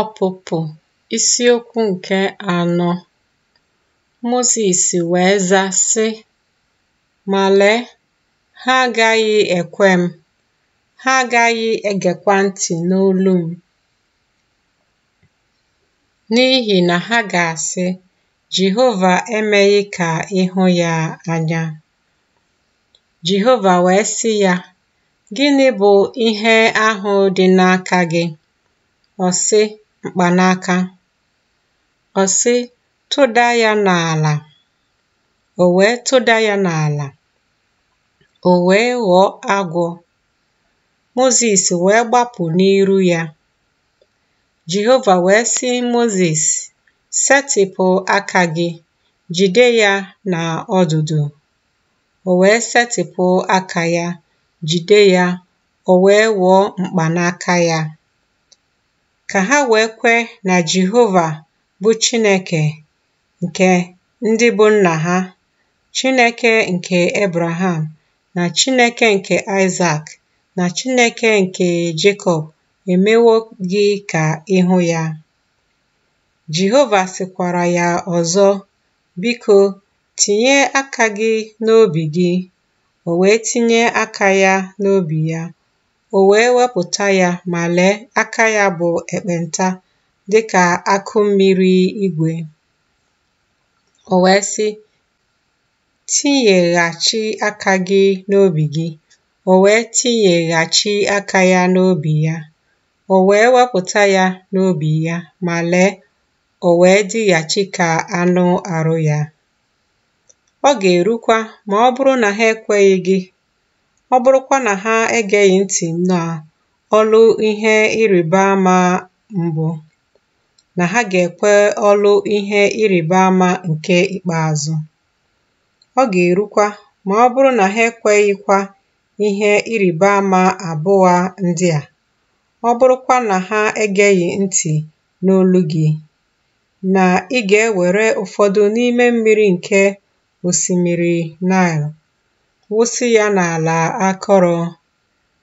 Ọpụpụ isiokwu nke anọ Mozis wee za sị, Ma ha agaghị ekwe m, ha agaghị egekwa ntị n'olu m, n'ihi na ha ga-asị, Jehova emeghị ka ị hụ ya anya. Jehova wee sị ya, Gịnị bụ ihe ahụ dị n'aka gị? ọ̀sị m̀kpànaka ọ̀sị tụda ya n'àlà O wee tụda ya n'àlà ò wee ghọọ agwọ Mozis wee gbapụ n'iru ya Jehova wee sị Mozis setịpụ aka gị jide ya na ọdụdụ o wee setịpụ aka ya jide ya o wee ghọọ mkpanaka ya ka ha wee kwe na Jehova bụ Chineke nke ndị bụ nna ha, Chineke nke Ebraham na Chineke nke Aịzak na Chineke nke Jekọb emewo gị ka ịhụ ya. Jehova sịkwara ya ọzọ, biko tinye aka gị n'obi gị, o wee tinye aka ya n'obi ya. o wee wepụta ya ma lee aka ya bụ ekpenta dịka akụ mmiri igwe. O wee sị, tinyeghachi aka gị n'obi gị. O wee tinyeghachi aka ya n'obi ya. O wee wepụta ya n'obi ya ma lee, o wee dịghachi ka anụ arụ ya. Ọ ga-erukwa ma ọ bụrụ na ha ekweghị gị ọ bụrụkwa na ha egeghị ntị na ọlụ ihe ịrịba ama mbụ na ha ga-ekwe ọlụ ihe ịrịba ama nke ikpeazụ ọ ga-erukwa. Ma ọ bụrụ na ha ekweghịkwa ihe ịrịba ama abụọ ndị a ọ bụrụkwa na ha egeghị ntị n'olu gị na ị ga-ewere ụfọdụ n'ime mmiri nke osimiri Nile wụsị ya n'ala akọrọ.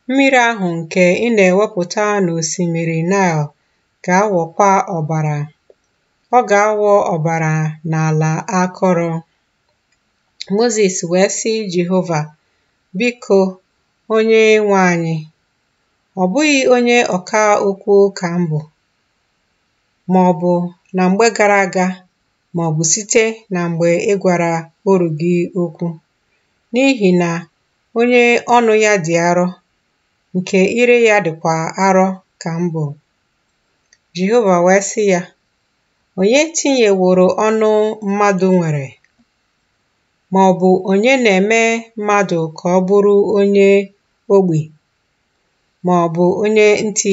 Mmiri ahụ nke ị na-ewepụta n'osimiri Nile ga awọkwa ọbara. Ọ ga awọ ọbara n'ala akọrọ. Mozis wee sị Jehova, “Biko, onye nwe anyị, ọ bụghị onye ọka okwu ka m bụ, maọbụ na mgbe gara aga maọbụ site na mgbe ị gwara oru gị okwu. N'ihi na onye ọnụ ya dị arọ nke ire ya dịkwa arọ ka mbụ, jehova wee sị ya, Onye tinyeworo ọnụ mmadụ nwere, ma ọ bụ onye na-eme mmadụ ka ọ bụrụ onye ma ọ bụ onye ntị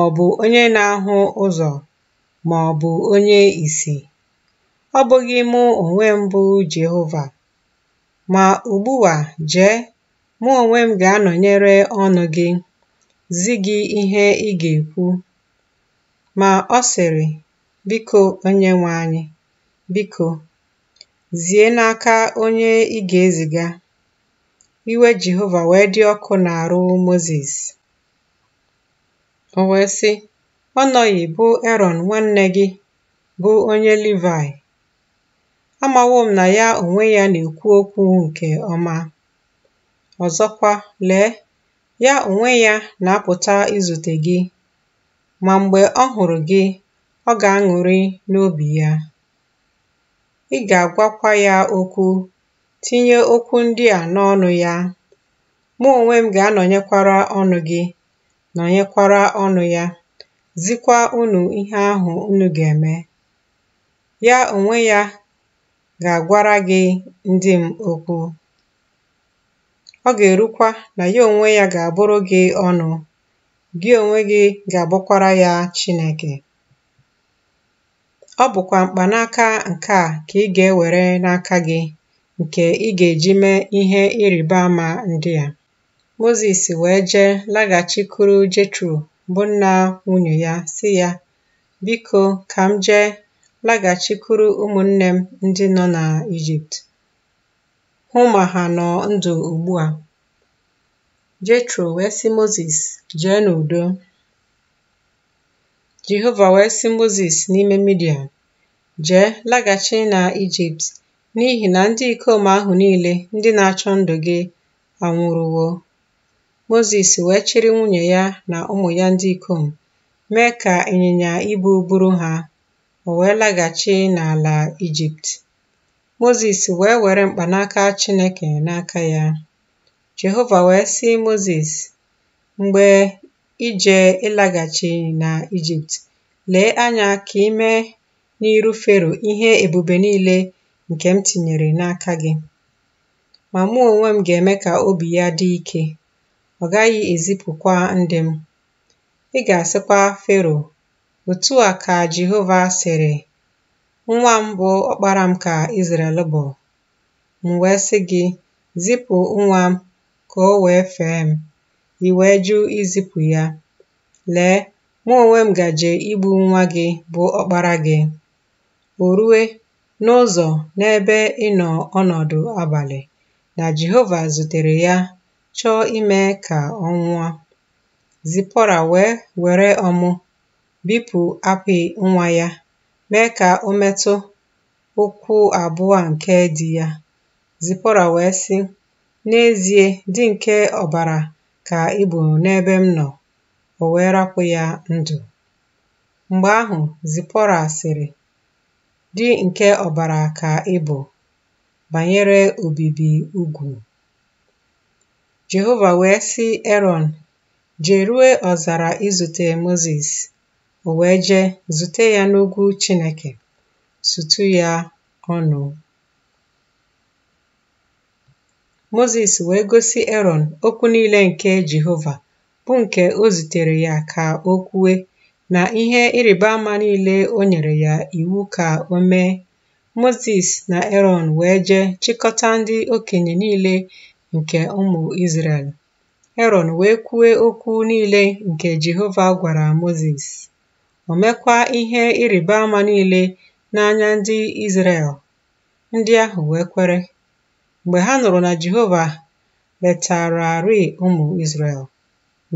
ọ bụ onye na-ahụ ụzọ, ma ọ bụ onye ìsì? Ọ bụghị mụ onwe m bụ Ma ugbu a jee, mụ onwe m ga-anọnyere ọnụ gị, zi gị ihe ị ga-ekwu. Ma ọ sịrị, Biko, onye anyị, biko, zie n'aka onye ị ga-eziga. Iwe Jehova wee dị ọkụ n'arụ Moses. O wee sị, Ọ nọghị bụ Erọn nwanne gị, bụ onye Livaị, amawo m na ya onwe ya na-ekwu okwu nke ọma. Ọzọkwa, lee, ya onwe ya na-apụta izute gị, ma mgbe ọ hụrụ gị, ọ ga-aṅụrị n'obi ya. Ị ga-agwakwa ya okwu, tinye okwu ndị a n'ọnụ ya. Mụ onwe m ga-anọnyekwara ọnụ gị, nọnyekwara ọnụ ya, zikwa unu ihe ahụ unu ga-eme. Ya onwe ya ga agwara gị ndị m okwu. Ọ ga-erukwa na ya onwe ya ga-abụrụ gị ọnụ, gị onwe gị ga abụkwara ya Chineke. Ọ bụkwa mkpanaka nke a ka ị ga-ewere n'aka gị nke ị ga-eji mee ihe ịrịba ama ndị a. Mozis wee jee laghachikwuru Jetro bụ nna nwunye ya si ya, “Biko, ka m jee laghachikwuru ụmụnne m ndị nọ n'Ijipt hụ ma ha nọ ndụ ugbu a. Jethro wee sị Moses, jee n'udo. Jehova wee sị Moses n'ime Midian, jee laghachi na Ijipt n'ihi na ndị ikom ahụ niile ndị na-achọ ndụ gị anwụrụwo. Moses wee chịrị nwunye ya na ụmụ ya ndị ikom mee ka ịnyịnya ibu buru ha o wee laghachi n'ala Ijipt. Mozis wee were mkpanaka Chineke n'aka ya. Jehova wee sị Mozis, mgbe ije ịlaghachi na Ijipt, lee anya ka ime n'iru Fero ihe ebube niile nke m tinyere n'aka gị ma mụ onwe m ga-eme ka obi ya dị ike ọ gaghị ezipụkwa ndị m ị ga-asịkwa Fero Otu a ka Jehova sịrị, “Nwa m bụ ọkpara m ka Izrel bụ. M wee sị gị, zipụ nwa m ka o wee fee m, i wee izipụ ya. Lee, mụ onwe m gaje igbu nwa gị bụ ọkpara gị. O rue n'ụzọ n'ebe ịnọ ọnọdụ abalị na Jehova zutere ya chọọ ime ka ọ nwụọ. Zipọra wee were ọmụ bipụ apị nwa ya mee ka o metụ ụkwụ abụọ nke di ya. Zipọra wee sị, “N'ezie, dị nke ọbara ka ị bụ n'ebe m nọ.” O wee rapụ ya ndụ. Mgbe ahụ, zipọra sịrị, "Dị nke ọbara ka ị bụ, banyere obibi ugwu.” Jehova wee sị eron “Jerue ọzara izute Mozis o wee jee zute ya n'ugwu Chineke sutu ya ọnụ Mozis wee gosi Erọn okwu niile nke Jehova bụ nke o zutere ya ka o kwue na ihe ịrịba ama niile o nyere ya iwu ka o mee Mozis na Erọn wee jee chịkọta ndị okenye niile nke ụmụ Izrel Erọn wee kwue okwu niile nke Jehova gwara Mozis o mekwa ihe ịrịba ama niile n'anya ndị Izrel. Ndị ahụ wee kwere mgbe ha nụrụ na Jehova letararị ụmụ Izrel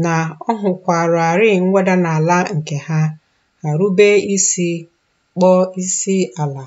na ọ hụkwararị mweda n'ala nke ha ha rube isi kpọọ isi ala